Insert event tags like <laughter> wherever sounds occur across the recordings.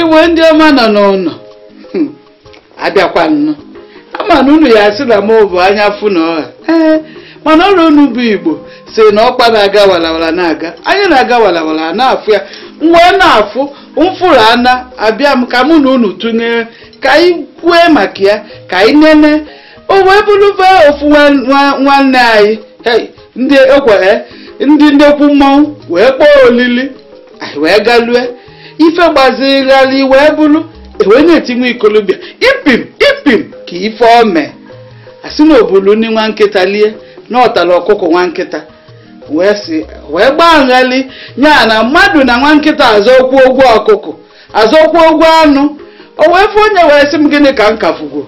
iwe ndị ọma nọ n'ụlọ hmm, abịakwa nnụ ama na unu ya asịla m bụ anya fụ na ọha ee mana ọrụ unu bụ igbo si na ọkpa na-aga walawala na-aga anya na-aga walawala na-afụ ya mgbe na-afụ mfụrụ ana abịa m ka mụ na unu tụnyere ka anyị kwue maka ya ka anyị nene o wee bụrụba ofu nwanne anyị ndị ekwere eh, ndị ndekwu wee kpọọ olili anyị wee galue ife gbazigharị wee bụrụ ewee na-etinwe ikolobịa ipim ipim ka ife ome asị na obulu ndị nwa nkịta lie na ọtara nwa nkịta wee si wee gbaa nghali ya na mmadụ na nwa nkịta azọkwu ụgwọ ọkụkọ okwu ụgwọ anụ o wee fụ onye wee sị m gịnị ka m kafugo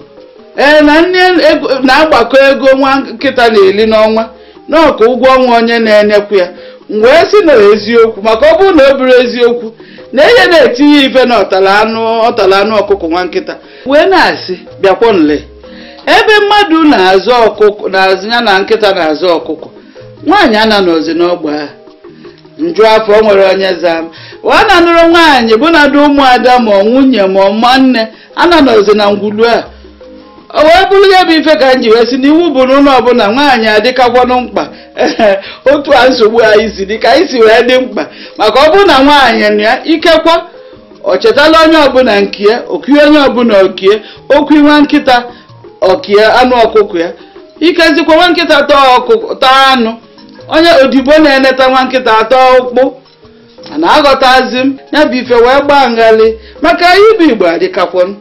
ee na nne na-agbakọ ego nwa nkịta na-eli n'ọnwa n'ọka ụgwọ ọnwa onye na-enyekwu ya m wee sị na eziokwu maka ọ bụrụ na ọ buru eziokwu na ihe na-etinye ife na ọtala anụ ọtara anụ ọkụkọ nwa nkịta wee na-asị bịakwa nle ebe mmadụ na-azụ ọkụkọ na-azụ ya na nkịta na-azụ ọkụkọ nwaanyị ana n'ozi n'ọgba ha nju afọ nwere onye zam. m ọ na-anụrụ nwaanyị bụ na dị ụmụada ma ọ nwunye ma ọ nne ana n'ozi na ngwulu a o wee bụrụ ya bụ ife ka m ji wee na n'iwu bụ n'ụlọ ọbụla nwaanyị adịkakwanụ mkpa <laughs> otu a nsogbu anyị si dịka anyị si wee dị mkpa maka ọ bụrụ na nwaanyị na ya ikekwa ọ chetala onye ọbụla nkie okie onye ọbụla okie okwu nwa nkịta okie anụ ọkụkọ ya ikezikwa nwa nkịta taa anụ onye odibo na-eneta nwa nkịta atọ ụkpụ na aghọtazi m ya bụ ife wee gbaa nghalị maka anyị bụ igbo adịkakwọnụ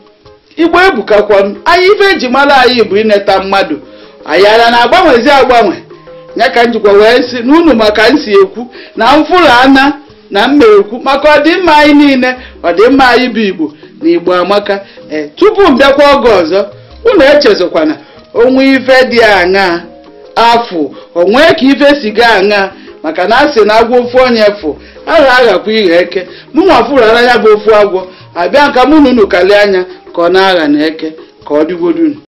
igbo ebukakwọnụ anyị ife eji mara anyị bụ ineta mmadụ anyị ara na-agbanwezi agbanwe ya ka m jikwa wee si na unu maka m si ekwu na mfụrụ ana na mma ekwu maka ọdịmma anyị niile ọdịmma anyị bụ igbo na igbo amaka eh, tupu m bịakwa oge ọzọ unu echezokwana onwe ife dị aṅaa afụ onwee ka ife si gaa aṅaa maka na asị na agwọ ofu onye fụ agha aghakwa ighe eke mụ nwa fụrụara ya bụ ofu agwọ abịa nka mụ na unu kalie anya ka ọ na-agha na eke ka ọ dịgodunu